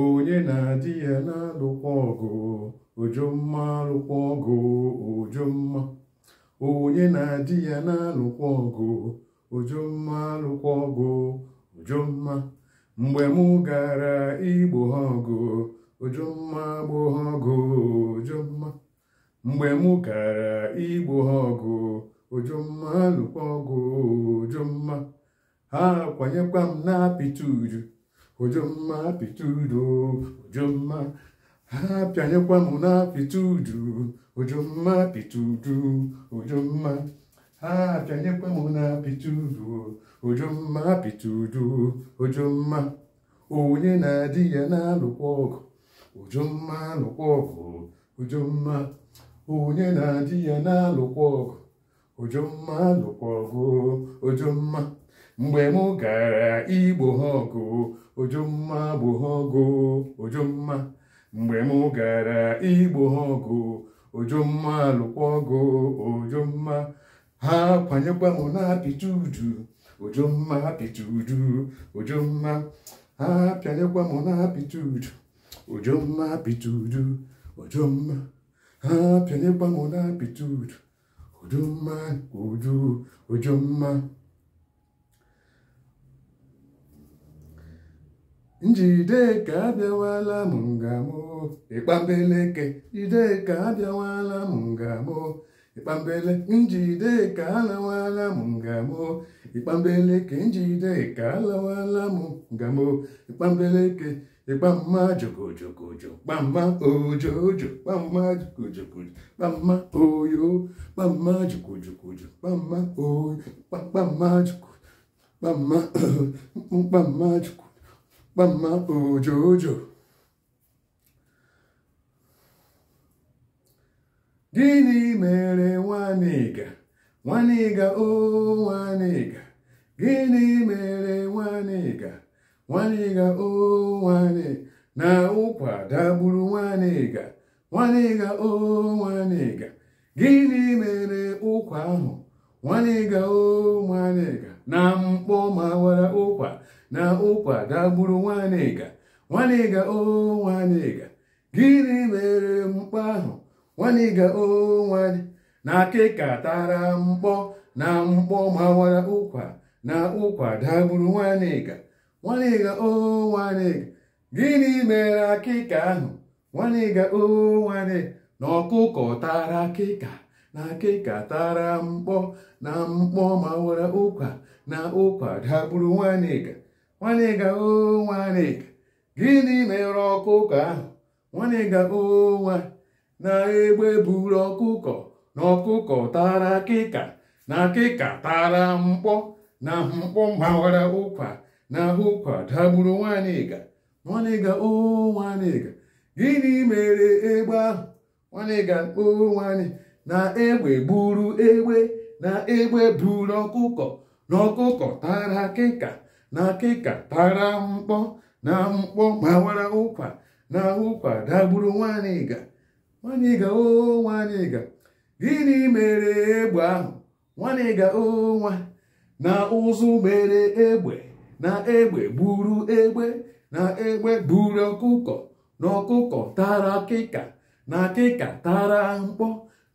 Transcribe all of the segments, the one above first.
onye na-adị ya na-alụkwa ọgụ ojomma alụkwa ọgụ ojomma onye na-adị ya na-alụkwa ọgụ ojomma alụkwa ọgụ ojomma mgbe m gara igbo ha ọgụ ojomma gbo ha ọgụ mgbe mụ gara igbo ha ọgụ ojomma alụkwa ọgụ ojomma ha kwanyekwa m na apịta uju ojomma pitudo ojomma ha bịanyekwa m na pitudu ojomma pitudu ojomma ha bịanyekwa m na pitudu ojomma pitudu ojomma onye na-adị ya na-alụkwa ọgụ ojomma alụkwa ọgụ ojomma onye na-adị ya na-alụkwa ọgụ ojomma alụkwa ọgụ ojomma mgbe m gara igbo ha ọgụ ojumma gboo Ojuma ojumma mgbe m gara igbo Ojuma ojumma Ojuma ojumma ha kwanyekwa m na Ojuma udu ojumma ojumma ha pịanyekwa m na Ojuma udu ojumma apịta ojumma ha pịanyekwa m na apịta udu ojumma udu ojumma njideka abịawala m ngamo ịkpambeleke jideka abịawala m ngamo ịkpambele njideka alawala m ngamo ịkpambeleke njideka alawala m ngamo ịkpambeleke ịgbamma jogojogojo gbamma ojojo gbamma jogojogojo gbamma oyo gbamma jogojogojo gbamma oyo gbamma jogo gbamma gbamma jogo mama ojojo gịnị mere nwanịga nwanịga o nwanịga gịnị mere nwanịga nwanịga o nwanị na ụkwa dagburu nwanịga nwanịga o nwanịga gịnị mere ụkwa ahụ nwanịga o nwanịga na mkpọ mawara ụkwa na ụkwa ga gburu nwanịga nwanịga o nwanịga gịnị mere mkpa ahụ nwanịga o nwanị na akịka tara mkpọ na mkpọ mawara ụkwa na ụkwa dagburu nwanịga nwanịga o nwanịga gịnị mere akịka ahụ nwanịga o nwanị na ọkụkọ tara akịka na akịka tara mkpọ na mkpọ mawara ụkwa na ụkwa dagburu nwanịga nwanịga o nwanịga gịnị mere ọkụkọ ahụ nwanịga o nwa na-egbe buru ọkụkọ na ọkụkọ tara akịka na akịka tara mkpọ na mkpọ gbawara ụkwa na ụkwa dagburu nwanịga nwanịga o nwanịga gịnị mere egbe ahụ nwanịga o nwanị na egbe buru egbe na egbe buru ọkụkọ na ọkụkọ tara akịka na akịka tara mkpọ na mkpọ ma wara ụkwa na ụkwa dagburu nwaanyị ịga nwaanyị ịga o nwaanyị ịga gịnị mere egbe ahụ nwaanyị ịga o nwa na ụzụ mere egbe na egbe gburu egbe na egbe gburu ọkụkọ na ọkụkọ tara akịka na akịka tara mkpọ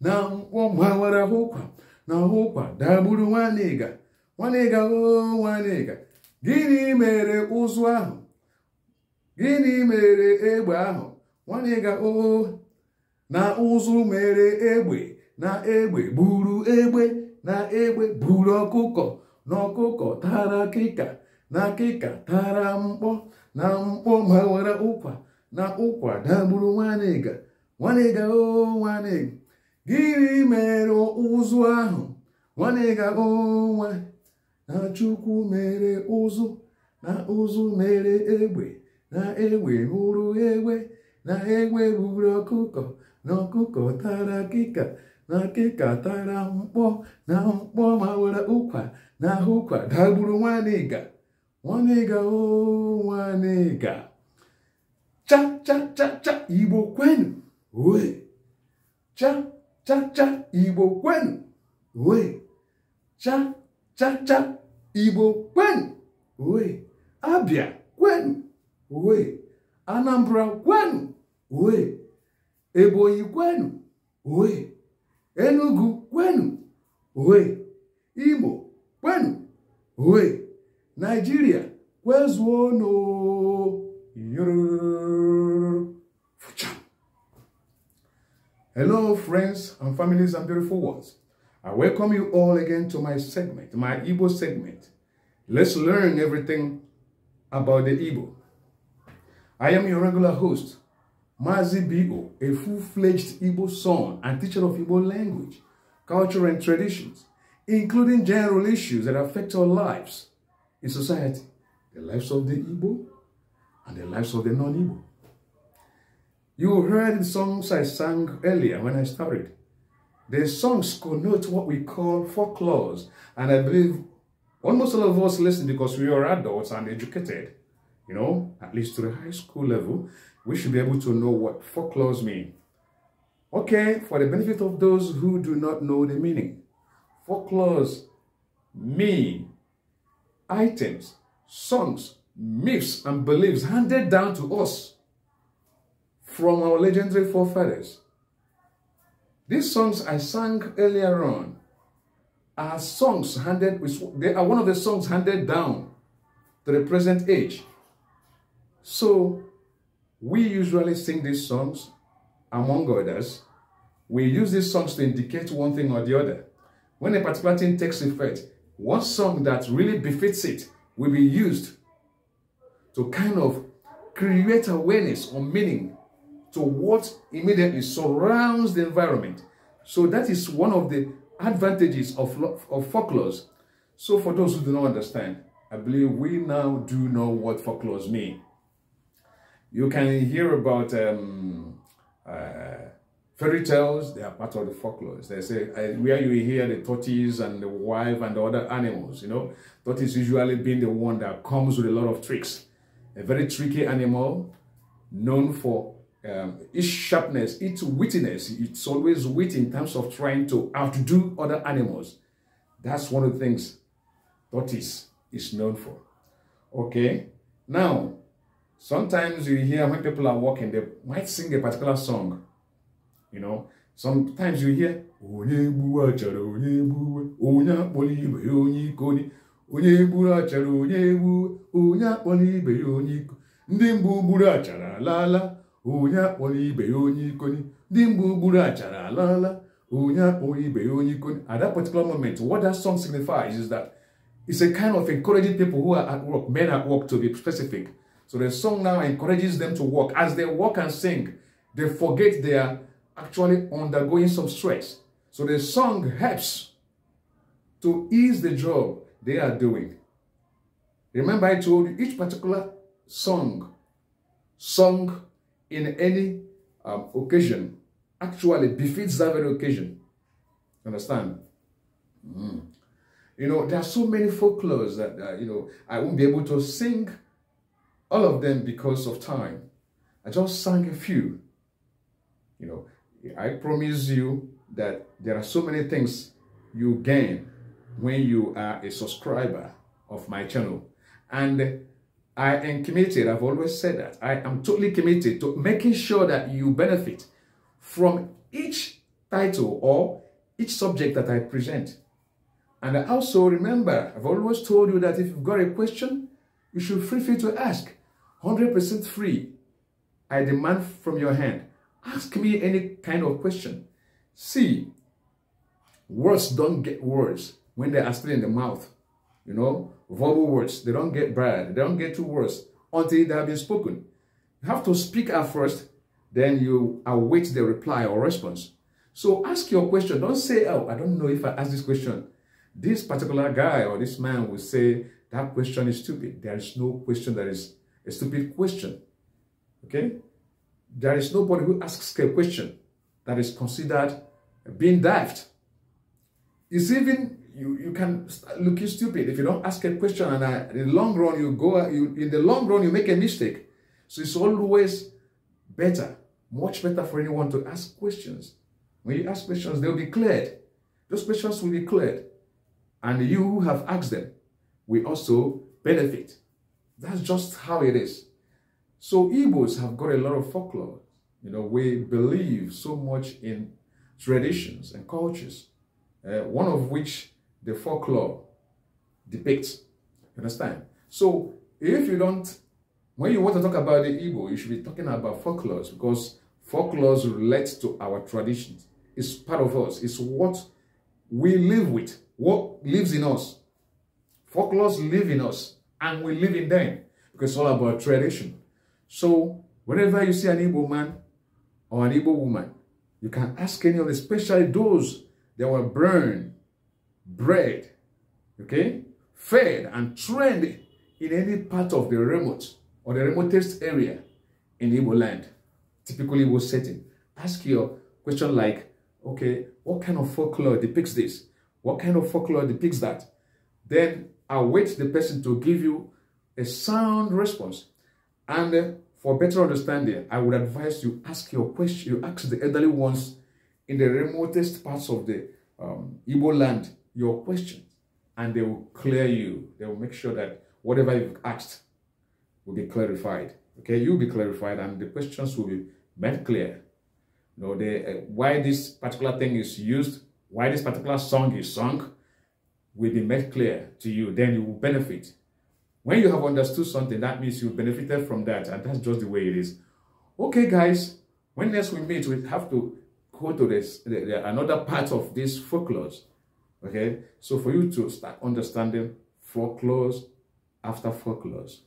na mkpọ ma wara ụkwa na ụkwa dagburu nwaanyị ịga nwaanyị ịga o nwaanyị ịga gịnị mere ụzụ ahụ gịnị mere egbe ahụ nwanne ga oo na ụzụ mere egbe na egbe buru egbe na egbe buru ọkụkọ na ọkụkọ tara kịka na kịka tara mkpọ na mkpọ ma ụkwa na ụkwa dagburu nwanịga nwanịga oo nwanịga gịnị mere ụzụ ahụ nwanịga oo nwa na chukwu mere ụzụ na ụzụ mere egbe na egbe mụrụ egbe na egbe gburu ọkụkọ na ọkụkọ tara kịka na kịka tara mkpọ na mkpọ mawara ụkwa na ahụkwa dagburu nwanịga nwanịga nwanịga cha-cha-cha-cha igbo kwenu cha cha cha igbo kwenu cha chacha igbo kwenu uwe abia kwenu uwe anambra kwenu uwe ebonyi kwenu uwe enugu kwenu uwe imo kwenu uwe naijiria kwezuonu Hello, friends and families and beautiful ones. I welcome you all again to my segment, my Igbo segment. Let's learn everything about the Igbo. I am your regular host, Mazi Bigo, a full-fledged Igbo son and teacher of Igbo language, culture and traditions, including general issues that affect our lives in society, the lives of the Igbo and the lives of the non-Igbo. You heard the songs I sang earlier when I started. The songs connote what we call folklores. And I believe almost all of us listen because we are adults and educated, you know, at least to the high school level, we should be able to know what folklores mean. Okay, for the benefit of those who do not know the meaning, folklores mean items, songs, myths, and beliefs handed down to us from our legendary forefathers. These songs I sang earlier on are songs handed, they are one of the songs handed down to the present age. So we usually sing these songs among others. We use these songs to indicate one thing or the other. When a particular thing takes effect, one song that really befits it will be used to kind of create awareness or meaning to what immediately surrounds the environment. So that is one of the advantages of, of folklores. So for those who do not understand, I believe we now do know what folklores mean. You can hear about um, uh, fairy tales, they are part of the folklores. They say, uh, where you hear the tortoise and the wife and the other animals, you know, tortoise usually being the one that comes with a lot of tricks. A very tricky animal known for um, its sharpness, its wittiness. It's always wit in terms of trying to outdo other animals. That's one of the things tortoise is known for. Okay, now sometimes you hear when people are walking, they might sing a particular song. You know, sometimes you hear onye gburu onye akpọrọ ibe ya onye ikoni ndị mgbe ugburu achara alaala onye akpọrọ ibe ya onye ikoni at that particular moment what that song signifies is that it's a kind of encouraging people who are at work men at work to be specific so the song now encourages them to work as they work and sing they forget they are actually undergoing some stress so the song helps to ease the job they are doing remember i told you each particular song song in any um, occasion actually befits that very occasion. Understand? Mm. You know, there are so many folklores that, uh, you know, I won't be able to sing all of them because of time. I just sang a few. You know, I promise you that there are so many things you gain when you are a subscriber of my channel. And I am committed, I've always said that, I am totally committed to making sure that you benefit from each title or each subject that I present. And I also remember, I've always told you that if you've got a question, you should feel free to ask. 100% free. I demand from your hand. Ask me any kind of question. See, words don't get words when they are still in the mouth you know, verbal words. They don't get bad. They don't get too worse until they have been spoken. You have to speak at first, then you await the reply or response. So ask your question. Don't say, oh, I don't know if I ask this question. This particular guy or this man will say, that question is stupid. There is no question that is a stupid question. Okay? There is nobody who asks a question that is considered being daft. It's even you you can look stupid if you don't ask a question and I, in the long run you go you in the long run you make a mistake so it's always better much better for anyone to ask questions when you ask questions they'll be cleared those questions will be cleared and you who have asked them We also benefit that's just how it is so Igbos have got a lot of folklore you know we believe so much in traditions and cultures uh, one of which the folklore depicts. You understand? So if you don't, when you want to talk about the Igbo, you should be talking about folklore because folklore relates to our traditions. It's part of us. It's what we live with, what lives in us. Folklore live in us and we live in them because it's all about tradition. So whenever you see an Igbo man or an Igbo woman, you can ask any of the, especially those that were burned bred, okay, fed and trained in any part of the remote or the remotest area in Igbo land, typically Igbo setting. Ask your question like, okay, what kind of folklore depicts this? What kind of folklore depicts that? Then await the person to give you a sound response. And uh, for better understanding, I would advise you ask your question, you ask the elderly ones in the remotest parts of the um, Igbo land your questions and they will clear you. They will make sure that whatever you've asked will be clarified. Okay, you'll be clarified and the questions will be made clear. You know, the, uh, why this particular thing is used, why this particular song is sung, will be made clear to you. Then you will benefit. When you have understood something, that means you benefited from that. And that's just the way it is. Okay, guys, when next we meet, we have to go to this, the, the, another part of this folklore. Okay, so for you to start understanding foreclose after foreclose.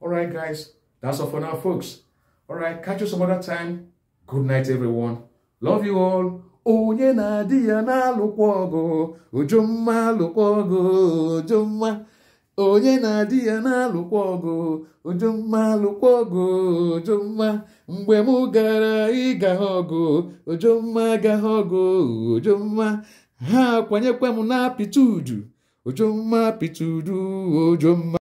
All right, guys, that's all for now, folks. All right, catch you some other time. Good night, everyone. Love you all. onye na-adị ya na-alụkwa ọgụ ujumma alụkwa ọgụ ujumma onye na-adị ya na-alụkwa ọgụ ujumma alụkwa ọgụ ujumma ịga ọgụ ujumma gaghị ọgụ ujumma ha kwanyekwa m na apịtụdu ojomma apịtụdu ojomma